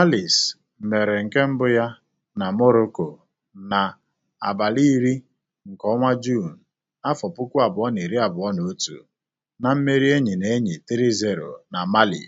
Alice mere nke mbụ ya na Morocco na abalị iri nke ọnwa Juun, afọ puku abụọ na iri abụọ na otu, na mmeri enyi na enyi 3-0 na Mali.